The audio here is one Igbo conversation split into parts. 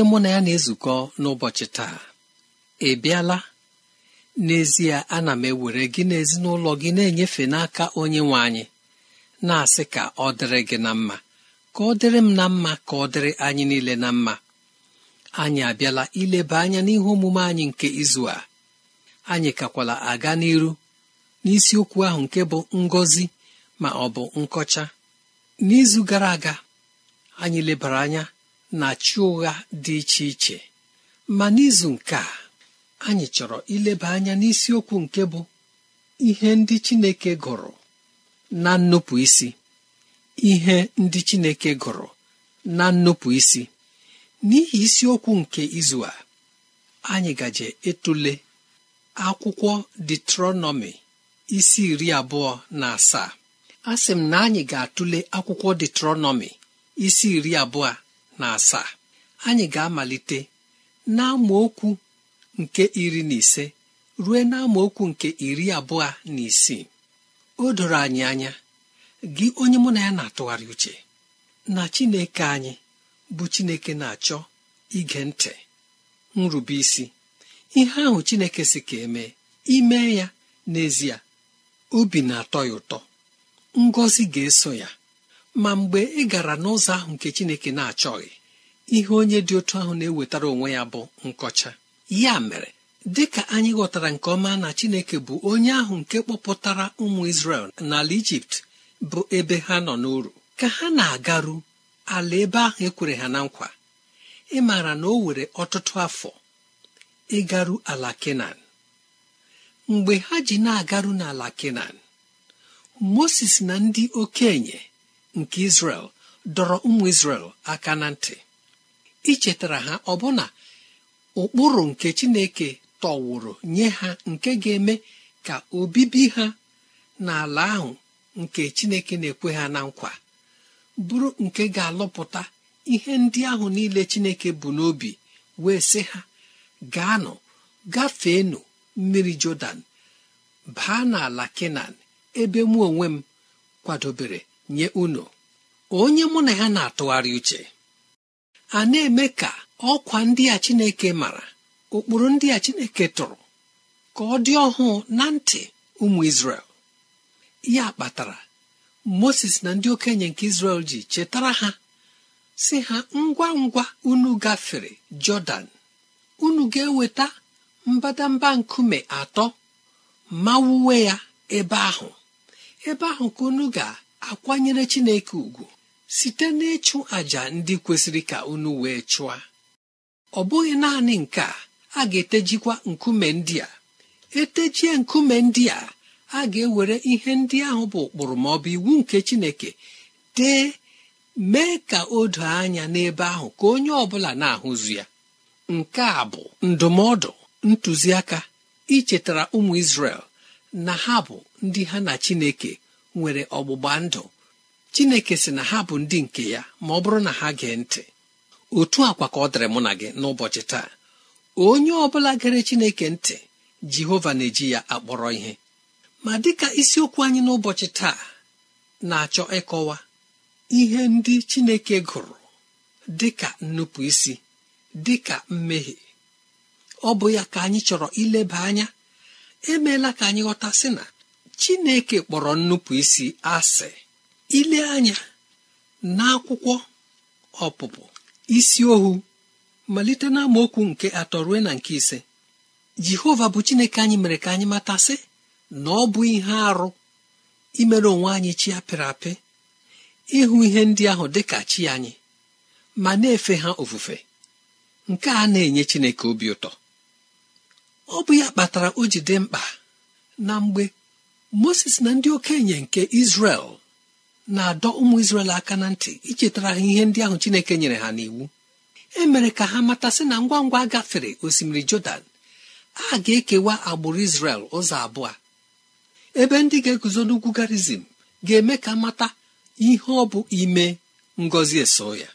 onye mụ na ya na-ezukọ n'ụbọchị taa ị bịala n'ezie ana m ewere gị na ezinụlọ gị na-enyefe n'aka onye nwe anyị na-asị ka ọ dịrị gị na mma ka ọ dịrị m na mma ka ọ dịrị anyị niile na mma anyị abịala ileba anya n'ihe omume anyị nke izu a anyị kakwala aga n'iru n'isiokwu ahụ nke bụ ngọzi ma ọ bụ nkọcha n'izu gara aga anyị lebara anya na chi ụgha dị iche iche ma n'izu nke a anyị chọrọ ileba anya n'isiokwu nke bụ ihe ndị Chineke gụrụ na nnupụ isi ihe ndị Chineke gụrụ na nnupụ isi n'ihi isiokwu nke izu a anyị gaje etule akwụkwọ detronọmi isi iri abụọ na asaa a sị m na anyị ga-atụle akwụkwọ detronọmi isi iri abụọ na asaa anyị ga-amalite na okwu nke iri na ise ruo na okwu nke iri abụọ na isii o doro anyị anya gị onye mụ na ya na-atụgharị uche na Chineke anyị bụ Chineke na-achọ ige ntị nrube isi ihe ahụ Chineke si ka eme ime ya n'ezie obi na-atọ ya ụtọ ngọzi ga-eso ya ma mgbe ị gara n'ụzọ ahụ nke chineke na-achọghị ihe onye dị otu ahụ na-ewetara onwe ya bụ nkọcha ya mere dị ka anyị ghọtara nke ọma na chineke bụ onye ahụ nke kpọpụtara ụmụ isrel n'ala ijipt bụ ebe ha nọ n'uru ka ha na-agaru ala ebe ahụ ekwere ha na nkwa ị maara na o were ọtụtụ afọ ịgaru ala mgbe ha ji na-agaru n'ala kenan mosis na ndị okenye nke Israel dọrọ ụmụ Israel aka na ntị ichetara ha ọbụna ụkpụrụ nke Chineke tọwụrụ nye ha nke ga-eme ka obibi ha n'ala ahụ nke Chineke na-ekwe ha na nkwa bụrụ nke ga-alụpụta ihe ndị ahụ niile Chineke bụ n'obi wee sị ha gaanụ gafeenụ mmiri Jọdan baa n'ala Kenan ebe mụ onwe m kwadobere nye unu onye mụ na ya na-atụgharị uche a na-eme ka ọkwa ndị a Chineke mara ụkpụrụ ndị a Chineke tụrụ ka ọ dị ọhụụ na ntị ụmụ Izrel ya kpatara Moses na ndị okenye nke Izrel ji chetara ha si ha ngwa ngwa unu gafere Jọdan unu ga-eweta mbadamba nkume atọ ma wuwe ya ebe ahụ ebe ahụ ka unu ga akwanyere Chineke ugwu site n'ịchụ àjà ndị kwesịrị ka unu wee chụọ ọ bụghị naanị nke a ga-etejikwa nkume ndị a etejie nkume ndị a a ga-ewere ihe ndị ahụ bụ ụkpụrụ ma ọ bụ iwu nke Chineke dee mee ka o doo anya n'ebe ahụ ka onye ọ na-ahụzu ya nke a bụ ndụmọdụ ntụziaka ichetara ụmụ Izrel na ha bụ ndị ha na Chineke nwere ọgbụgba ndụ chineke sị na ha bụ ndị nke ya ma ọ bụrụ na ha gee ntị otu akwa ka ọ dịrị mụ na gị n'ụbọchị taa onye ọ bụla gere chineke ntị jehova na-eji ya akpọrọ ihe ma dịka isiokwu anyị n'ụbọchị taa na-achọ ịkọwa ihe ndị chineke gụrụ dịka nnupụisi dịka mmehie ọ bụ ya ka anyị chọrọ ileba anya emeela ka anyị ghọta sị na chineke kpọrọ nnupụ isi asị ile anya n'akwụkwọ ọpụpụ isi ohu malite na nke atọ ruo na nke ise jehova bụ chineke anyị mere ka anyị matasị na ọ bụ ihe arụ imere onwe anyị chi apịrị apị ịhụ ihe ndị ahụ dị ka chi anyị ma na-efe ha ofufe nke a na-enye chineke obi ụtọ ọ bụ ya kpatara o ji dị mkpa na mgbe moses na ndị okenye nke izrel na-adọ ụmụ izrel aka na ntị ichetara ha ihe ndị ahụ chineke nyere ha n'iwu e mere ka ha matasị na ngwa ngwa gafere osimiri jọdan a ga-ekewa agbụrụ izrel ụzọ abụọ ebe ndị ga-eguzo n'ugwu garizim ga-eme ka mata ihe ọ bụ ime ngọzi eso ya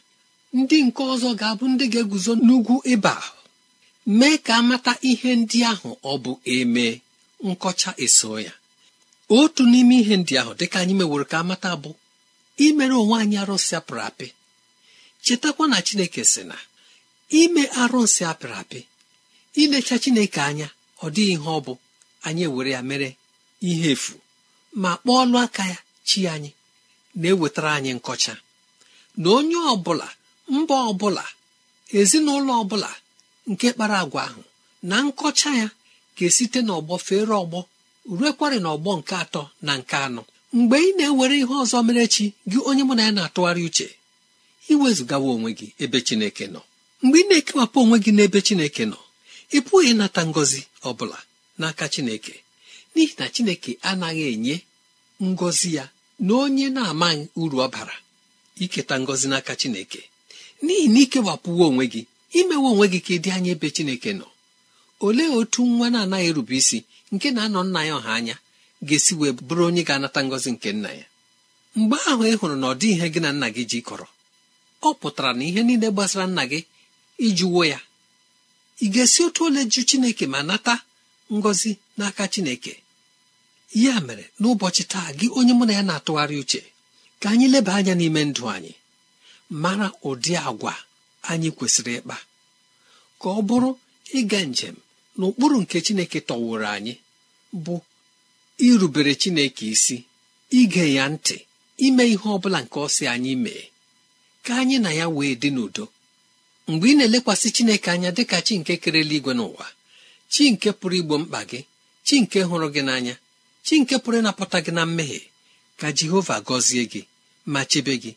ndị nke ọzọ ga-abụ ndị ga-eguzo n'ugwu ịba mee ka amata ihe ndị ahụ ọ bụ eme nkọcha eso ya otu n'ime ihe ndị ahụ dị ka anyị meworo ka amata bụ imere onwe anyị arụsị apịrị apị chetakwa na chineke sị na ime arụsị apịrị apị ilecha chineke anya ọ dịghị ihe ọ bụ anyị ewere ya mere ihe efu ma kpọọlụ aka ya chi anyị na-ewetara anyị nkọcha na onye ọbụla mba ọbụla ezinụlọ ọbụla nke kpara agwa ahụ na nkọcha ya ga-esite n'ọgbọ fere ọgbọ ruekwarị n'ọgbọ nke atọ na nke anọ mgbe ị na-ewere ihe ọzọ mere chi gị onye mụ na ya na-atụgharị uche iwezụgawa onwe gị ebe chineke nọ mgbe ị na-ekewapụ onwe gị n'ebe chineke nọ ị pụghị ịnata ngọzi ọ bụla n'aka chineke n'ihi na chineke anaghị enye ngọzi ya na onye na-amaghị uru ọ bara iketa ngọzi n'aka chineke n'ihi na ikewapụwo onwe gị imewe onwe gị ka ị dị anya ebe chineke nọ olee otu nwa na-anaghị erube isi nke na-anọ nna ya ọha anya ga-esi wee bụrụ onye ga-anata ngọzi nke nna ya mgbe ahụ ị hụrụ na ọ dị ihe gị na nna gị ji kọrọ, ọ pụtara na ihe niile gbasara nna gị ijuwo ya ị ga-esi otu ole ju chineke ma nata ngọzi n'aka chineke ya mere n'ụbọchị taa gị onye mụ na ya na-atụgharị uche ka anyị leba anya n'ime ndụ anyị mara ụdị agwa anyị kwesịrị ịkpa ka ọ bụrụ ịga njem n'ụkpụrụ nke chineke tọwụrụ anyị bụ irubere chineke isi ige ya ntị ime ihe ọbụla nke ọ anyị mee ka anyị na ya wee dị n'udo mgbe ị na-elekwasị chineke anya dị ka chi nke kerela igwe n'ụwa chi nke pụrụ igbo mkpa gị chi nke hụrụ gị n'anya chi nke pụrụ ịnapụta gị na mmehie ka jehova gọzie gị ma chebe gị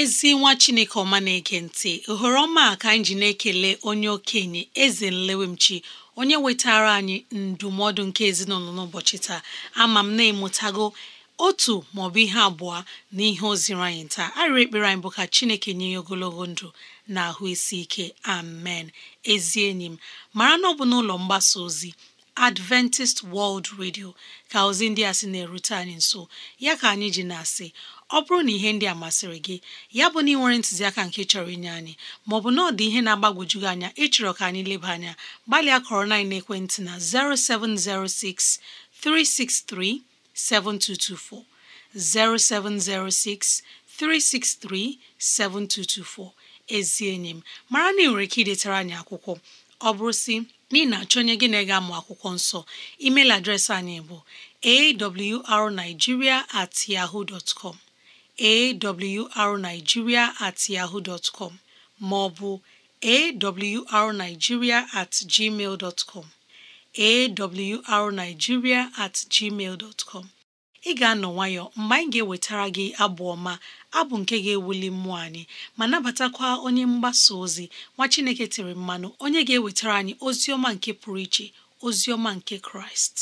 ezi nwa chineke ọma na-ege ntị ohere ọma ka anyị ji na-ekele onye okenye eze nlewemchi onye wetara anyị ndụmọdụ nke ezinụlọ n'ụbọchị taa ama m na-emụtago otu maọbụ ihe abụọ na ihe o anyị taa arịrị ekpere anyị bụ ka chineke nye ya ogologo ndụ na ahụ isi ike amen ezi enyi m mara na ọ n'ụlọ mgbasa ozi Adventist World Radio ka ozi ndị a sị na-erute anyị nso ya ka anyị ji na-asị ọ bụrụ na ihe ndị a masịrị gị ya bụ na ị nwere ntụziaka nke chọrọ inye anyị maọbụ na ọ dị ihe na-agbagwoju gị anya ịchọrọ ka anyị leba anya gbalịa kọrọ na ekwentị na 0706 363 7224 0706 363 7224 ezi enyi m mara na ị nwere ike idetara anyị akwụkwọ ọ bụrụ si na na-achọ gị na-ega amụ akwụkwọ nsọ email adreesị anyị bụ awrnigeria at yahoo dot awrnigeria at yahoo dot com maọbụ awrnigeria at gmail dot com at gmail dot ị ga-anọ nwayọ mgbe anyị ga-ewetara gị abụ ọma abụ nke ga-ewuli mmụọ anyị ma nabatakwa onye mgbasa ozi nwa Chineke tiri mmanụ onye ga-ewetara anyị ozi ọma nke pụrụ iche ozi ọma nke Kraịst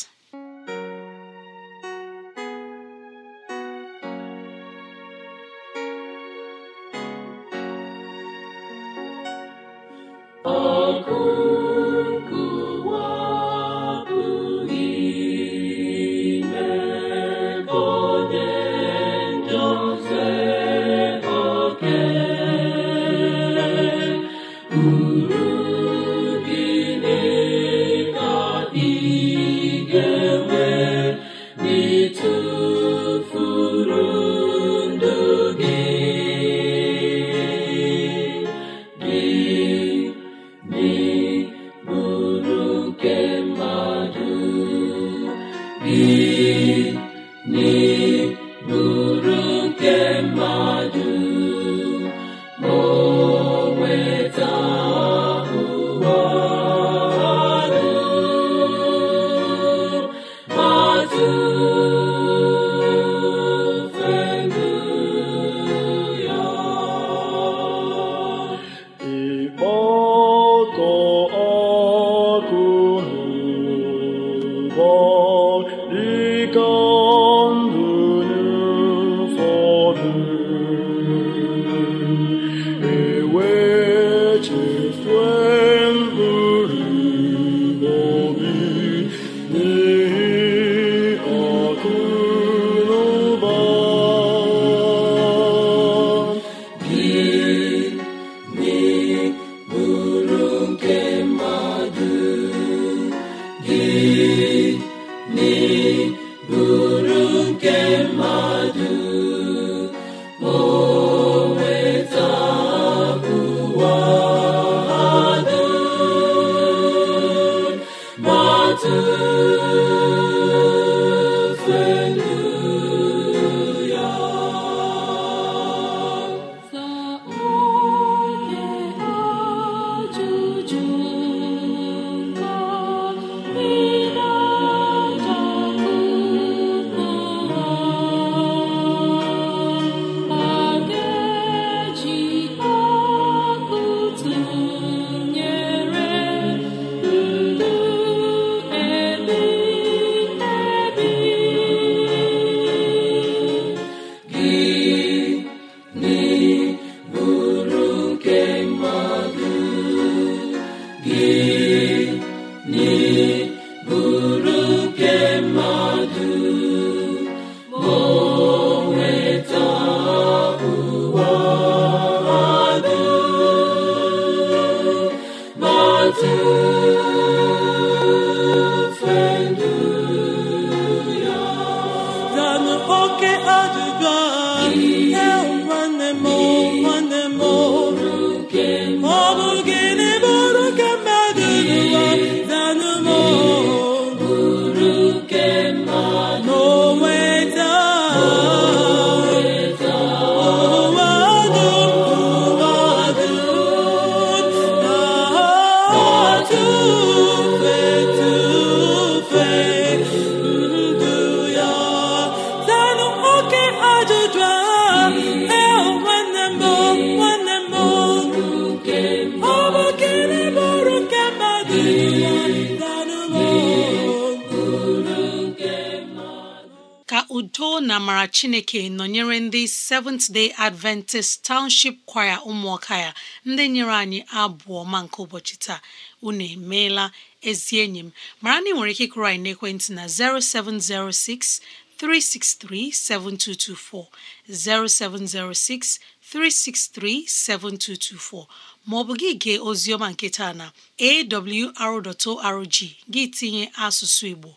maara chineke nọnyere ndị Seventh Day Adventist Township Choir ụmụọka ya ndị nyere anyị abụọ ma nke ụbọchị taa unu emeela ezi enyi m mara na ị nwere ike ịkụrụ anyị n'ekwentị na 0706 363 7224 0706 363 7224 ma ọ bụ gị gee oziọma nke na awr.org gị tinye asụsụ Igbo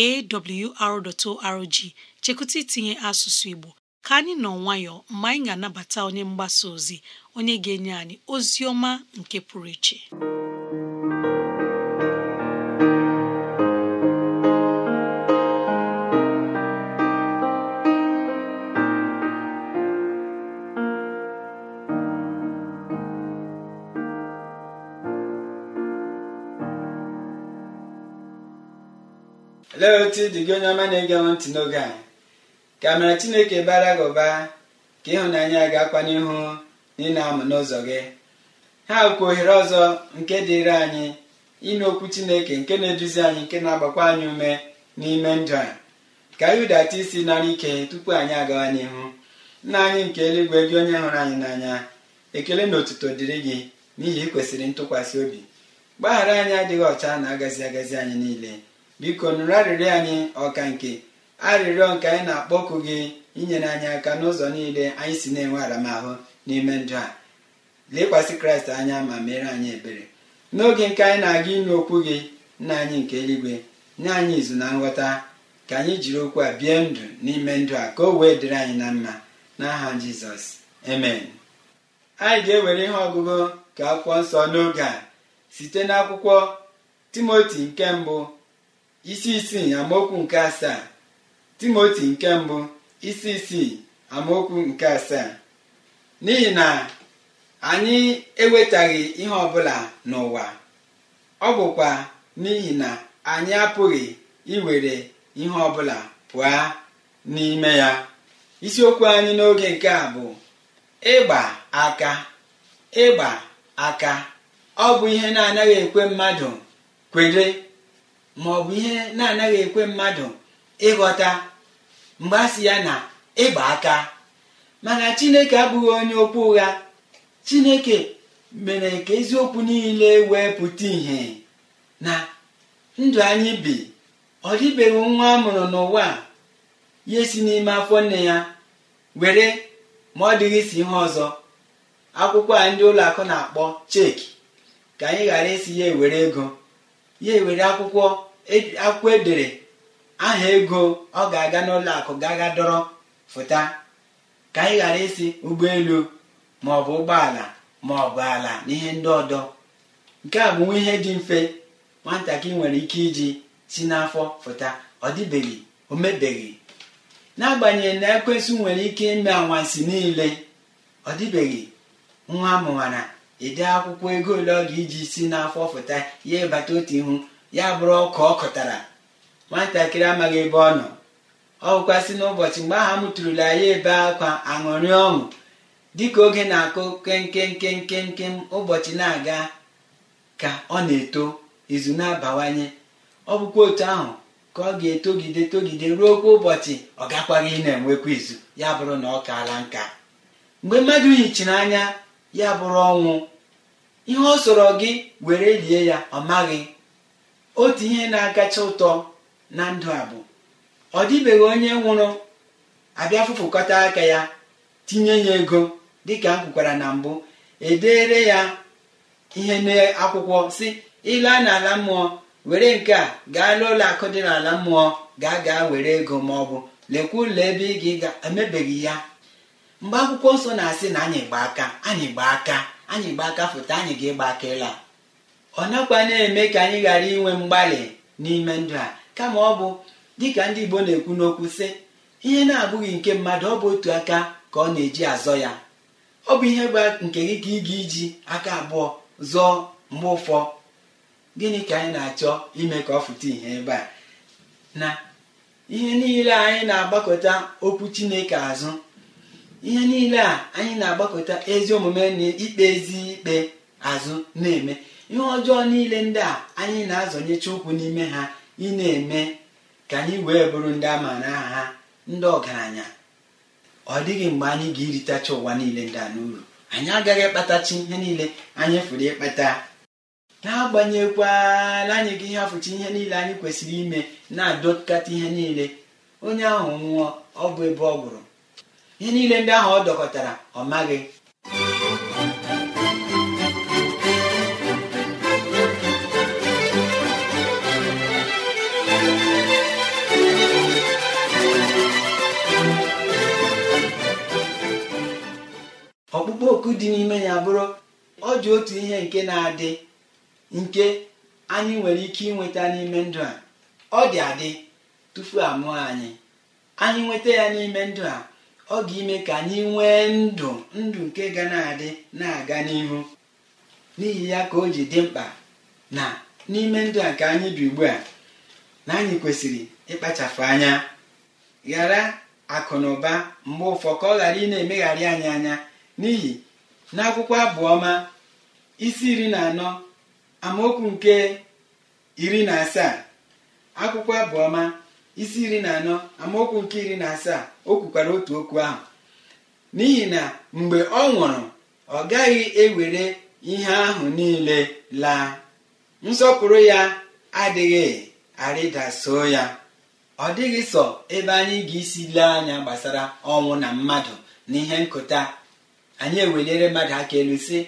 awr.org chekwụta itinye asụsụ Igbo ka anyị nọ nwayọ mgbe anyị ga-anabata onye mgbasa ozi onye ga-enye anyị ozi ọma nke pụrụ iche Olee otu dị gị onye ọma na-ege ntị n'oge anyị ka amara chineke bara gị ụba ka ịhụnanya ga-akwa n'ihu na ị na-amụ n'ụzọ gị ha bụkwa ohere ọzọ nke dịịrị anyị ịnụ okwu chineke nke na-eduzi anyị nke na-agbakwa anyị ume n'ime ndụ a ka anyị hụdata isi nara ike tupu anyị agawa n'ihu nna anyị nke eluigwe gị onye hụrụ anyị n'anya ekele na otuto dịrị gị n'ihi ị ntụkwasị obi mgbaghara anyị adịghị ọcha na agazi agazi anyị niile biko nụrụ anyị ọka nke arịrịọ nke anyị na-akpọku gị inyere anyị aka n'ụzọ niile anyị si na-enwe aramahụ n'ime ndụ a lekwasị kraịst anya ma mere anyị ebere n'oge nke anyị na-aga ịnụ okwu gị nna anyị nke eluigwe nye anyị izu na nghọta ka anyị jiri okwu a bie ndụ n'ime ndụ a ka o wee dịrị anyị na mma n'aha jizọs amen anyị ga-ewere ihe ọgụgụ ka akwụkwọ nsọ n'oge a site n'akwụkwọ timoti nke mbụ isi isii amaokwu nke asaa timoti nke mbụ isi isii amaokwu nke asaa n'ihi na anyị ewetaghị ihe ọbụla n'ụwa ọ bụkwa n'ihi na anyị apụghị iwere ihe ọbụla pụọ n'ime ya isiokwu anyị n'oge nke a bụ ịgba aka ịgba aka ọ bụ ihe na-anaghị ekwe mmadụ kwere ma bụ ihe na-anaghị ekwe mmadụ ịghọta mgbe a sị ya na ịgba aka mana chineke abụghị onye okwu ụgha chineke mere ka eziokwu niile wee pụta ìhè na ndụ anyị bi ọ dịbeghị nwa a mụrụ n'ụwa ya esi n'ime afọ nne ya were ma ọ dịghị isi ihe ọzọ akwụkwọ a ndị ụlọakụ na-akpọ cheki ka anyị ghara isi ya ewere ego ya ewere akwụkwọ e, akwụkwọ edere aha ego ọ ga-aga n'ụlọ akụ ga-aga dọrọ fụta ka anyị ghara isi ụgbọelu maọbụ ụgbọala ma ọ bụ ala na ihe ndị ọdọ nke a bụ nwa ihe dị mfe nwatakịrị nwere ike iji si n'afọ fụta ọ dịbeghị o mebeghị n'agbanyeghị na ekwesị nwere ike ime anwansi niile ọ dịbeghị nwa amụwara ede akwụkwọ ego ole ọ ga iji si n'afọ fụta ya ịbata otu ihu ya bụrụ ọkụ ọ kụtara nwatakịrị amaghị ebe ọ nọ ọ bụkwasị n'ụbọchị mgbe m tụrụla ya ebe akwa aṅụrị ọṅụ dịka oge na-akụ kenkenkenkenke ụbọchị na-aga ka ọ na-eto izu na-abawanye ọ bụkwa otu ahụ ka ọ ga-etogide togide ruo okwu ụbọchị ọ gakwaghị ị na-enwekwa izu ya bụrụ na ọ kaala nka mgbe mmadụ yichiri anya ya bụrụ ọnwụ ihe ọ sọrọ gị were lie ya ọ maghị otu ihe na-akacha ụtọ na ndụ a bụ ọ dịbeghị onye nwụrụ abịa fụfụkọta aka ya tinye ya ego dịka m kwukwara na mbụ edere ya ihe n'akwụkwọ si ịla n'ala mmụọ were nke a gaa n'ụlọ akụ dị n'ala mmụọ gaa gaa were ego ma ọ bụ lekwa ụlọ ebe ị ga-emebeghị ya mgbe akwụkwọ nsọ na-asị na anyị gba aka anyị gba aka anyị gba aka foto anyị ga-ịgba aka ịla ọ nakwa na-eme ka anyị ghara inwe mgbalị n'ime ndụ a kama ọ bụ dịka ndị igbo na-ekwu n'okwu sị ihe na-abụghị nke mmadụ ọ bụ otu aka ka ọ na-eji azọ ya ọ bụ ihe bụ nke gị ka ị ga-iji aka abụọ zọọ mgbe ụfọ gịnị ka anyị na-achọ ime ka ọ fụta ihe ebe a na ihe niile anyị na-agbakọta okwu chineke azụ ihe niile a anyị na-agbakọta ezi omume na ikpe ezi ikpe azụ na-eme ihe ọjọọ niile ndị a anyị na-azọnyecha ụkwụ n'ime ha ị na-eme ka anyị wee bụrụ ndị a maara aha ha ndị ọgaranya ọ dịghị mgbe anyị ga-eritacha ụwa niile ndị a n'uru anyị agaghị ịkpatachi ihe niile anyị fụrụ ịkpata na-agbanyekwala anyị gị ihe afụchi ihe niile anyị kwesịrị ime na-adọkata ihe niile onye ahụ nwụọ ọ bụ ebe ọ gwụrụ ihe niile ndị ahụ ọ dọkọtara ọ maghị ọkpụkpọ oku dị n'ime ya bụrụ ọ dị otu ihe nke na-adị nke anyị nwere ike ịnweta n'ime ndụ a ọ dị adị tufu amụọ anyị anyị nweta ya n'ime ndụ a ọ ga-ime ka anyị nwee ndụ ndụ nke ga na-adị na-aga n'ihu n'ihi ya ka o ji dị mkpa na n'ime ndụ a nke anyị bi ugbu a na anyị kwesịrị ịkpachapụ anya ghara akụ na ụba mgbe ụfọ ka ọ ghara ị na-emegharị anyị anya n'ihi na akwụkwọ abụọma isi iri na anọ amaokwu nke iri na asaa akwụkwọ abụọma isi iri na anọ amaokwu nke iri na asaa o kwukwara otu okwu ahụ n'ihi na mgbe ọ nwụrụ ọ gaghị ewere ihe ahụ niile laa nsọpụrụ ya adịghị arịdaso ya ọ dịghị sọ ebe anyị ga-esi lee anya gbasara ọnwụ na mmadụ na ihe nkụta anyị eweliere mmadụ aka elu si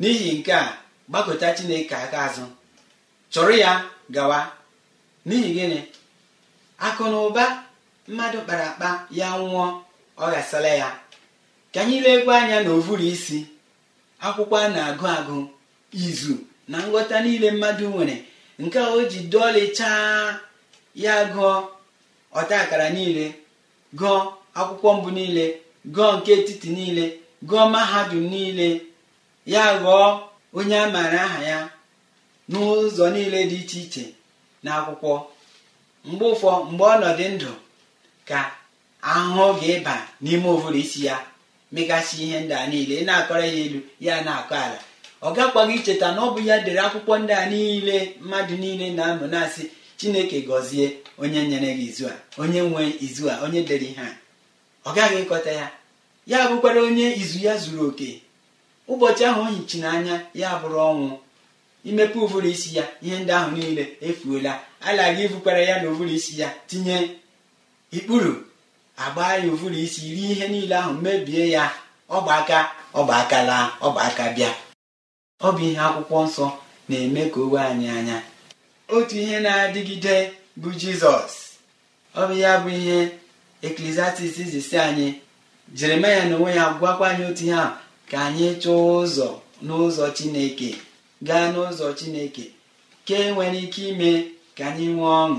n'ihi nke a gbakọta chineke aka azụ chọrọ ya gawa n'ihi gịnị akụ na ụba mmadụ kpara akpa ya nwụọ ọ ghasala ya ka anyị legwe anya na ovuru isi akwụkwọ a na-agụ agụ izu na nghọta niile mmadụ nwere nke o ji dọọlichaa ya gụọ ọta akara niile gụọ akwụkwọ mbụ niile gụọ nke etiti niile gụọ mahadum niile ya ghọọ onye a maara aha ya n'ụzọ niile dị iche iche na akwụkwọ mgbe ụfọ mgbe ọnọdụ ndụ ka ahụhụ ga-ịba n'ime obodo isi ya megasị ihe ndị a niile na-akọrọ ya elu ya na-akọ ala ọ gakwaghị icheta na ọ bụ ya dere akwụkwọ ndị a niile mmadụ niile na-amụ na-asị chineke gọzie onye nyere gị izu a onye nwe izu a onye dere ihe a ọ gaghị ịkọta ya ya bụkwara onye izu ya zuru oke ụbọchị ahụ o hichi n'anya ya bụrụ ọnwụ imepe ụvụrụ isi ya ihe ndị ahụ niile efuola alaghị ibukwara ya na ụvụrụ isi ya tinye ikpuru agba ya ụvụrụ isi rie ihe niile ahụ mebie ya ọba aka ọba aka laa aka bịa ọ bụ ihe akwụkwọ nsọ na-eme ka owe anyị anya otu ihe na-adịgide bụ jizọs ọ bụ ya bụ ihe eklesiastis zisi anyị jeremaya na onwe ya gwakwa anyị otu ihe a ka anyị chọọ ụzọ n'ụzọ chineke gaa n'ụzọ chineke ke nwere ike ime ka anyị nwee ọṅụ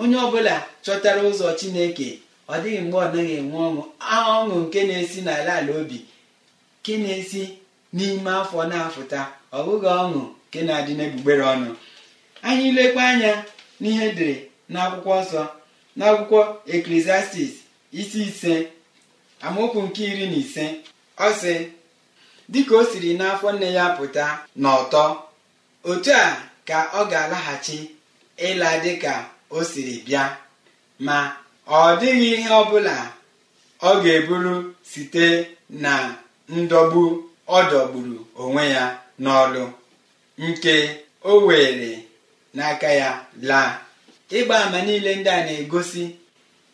onye ọbụla chọtara ụzọ chineke ọ dịghị mgbe ọ naghị enwe ọṅụ ọṅụ nke na-esi n'ala ala obi nke na-esi n'ime afọ na-afụta ọ bụghị ọṅụ nke na-adị n'egbugbere ọnụ anyị lekwa anya n'ihe edere n'akwụkwọ nsọ n'akwụkwọ akwụkwọ eklesiastis isi ise amaokwu nke iri na ise ọ sị dịka o siri n'afọ nne ya pụta n'ọtọ otu a ka ọ ga-alaghachi ịla dịka o siri bịa ma ọ dịghị ihe ọ bụla ọ ga-eburu site na ndọgbu ọ dọgburu onwe ya n'ọlụ nke o were n'aka ya laa ịgba ama niile ndị a na-egosi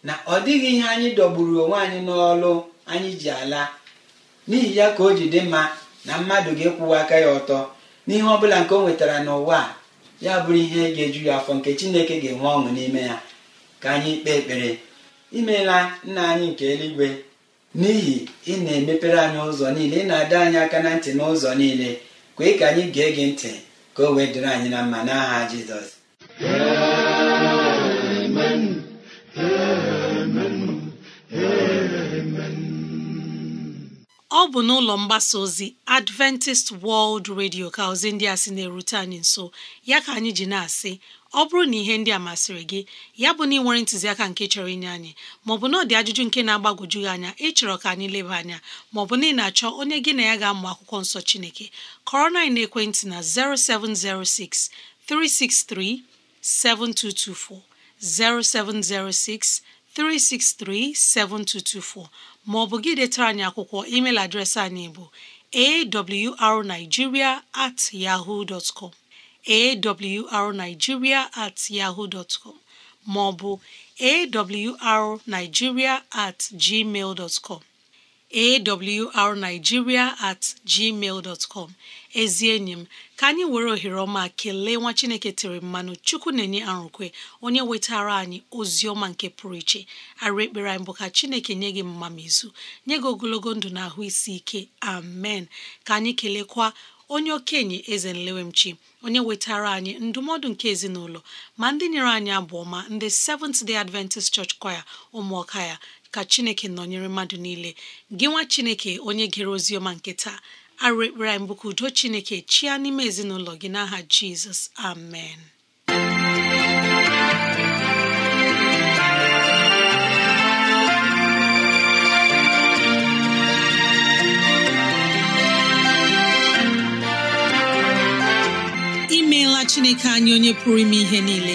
na ọ dịghị ihe anyị dọgburu onwe anyị n'ọlụ anyị ji ala n'ihi ya ka o ji dị mma na mmadụ ga-ekwuwa aka ya ọtọ n'ihe ọ bụla nke o nwetara n'ụwa a ya bụrụ ihe ga-eju ya afọ nke chineke ga-enwe ọṅụ n'ime ya ka anyị kpee ekpere imeela nna anyị nke eluigwe n'ihi ị na-emepere anyị ụzọ niile ị na-adọ anyị aka na ntị n'ụzọ niile kwee ka anyị gee gị ntị ka o wee dịrị anyị na mma n'aha jizọs ọ bụ n'ụlọ mgbasa ozi Adventist World Radio ka ozi ndị a sị na-erute anyị nso ya ka anyị ji na-asị ọ bụrụ na ihe ndị a masịrị gị ya bụ na ị nwere ntụziaka nke chọrọ inye anyị maọbụ na ọ dị ajụjụ nke na-agbagwoju gị anya ịchọrọ ka anyị leba anya maọbụ na ị na-achọ onye gị na ya ga-amụ akwụkwọ nsọ Chineke kọrọ na ekwentị na 0706 363 7224 0706 363 7224 maọbụ gị detara anyị akwụkwọ email adreesị anyị bụ awrnigeria at yahoo com awrnigeria at yahoo dot com maọbụ awrnigeria at gmail dot com awrnigeria at gmail dot com ezi enyi m ka anyị were ohere ọma kelee nwa chineke tere mmanụ chukwu na-enye arụkwe onye wetara anyị ozi ọma nke pụrụ iche arụ ekpere anyị bụ ka chineke nye gị mmamizu nye gị ogologo ndụ na ahụ isi ike amen ka anyị kelekwa onye okenye eze nlewemchi onye wetara anyị ndụmọdụ nke ezinụlọ ma ndị nyere anyị abụọ ma ndị Seventh Day Adventist Church Choir ụmụọka ya ka chineke nọnyere mmadụ niile gị nwa chineke onye gere ozi ọma nke taa arụ ekpere anyị udo chineke chia n'ime ezinụlọ gị n'aha jizọs amen imeela chineke anyị onye pụrụ ime ihe niile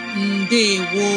ndewo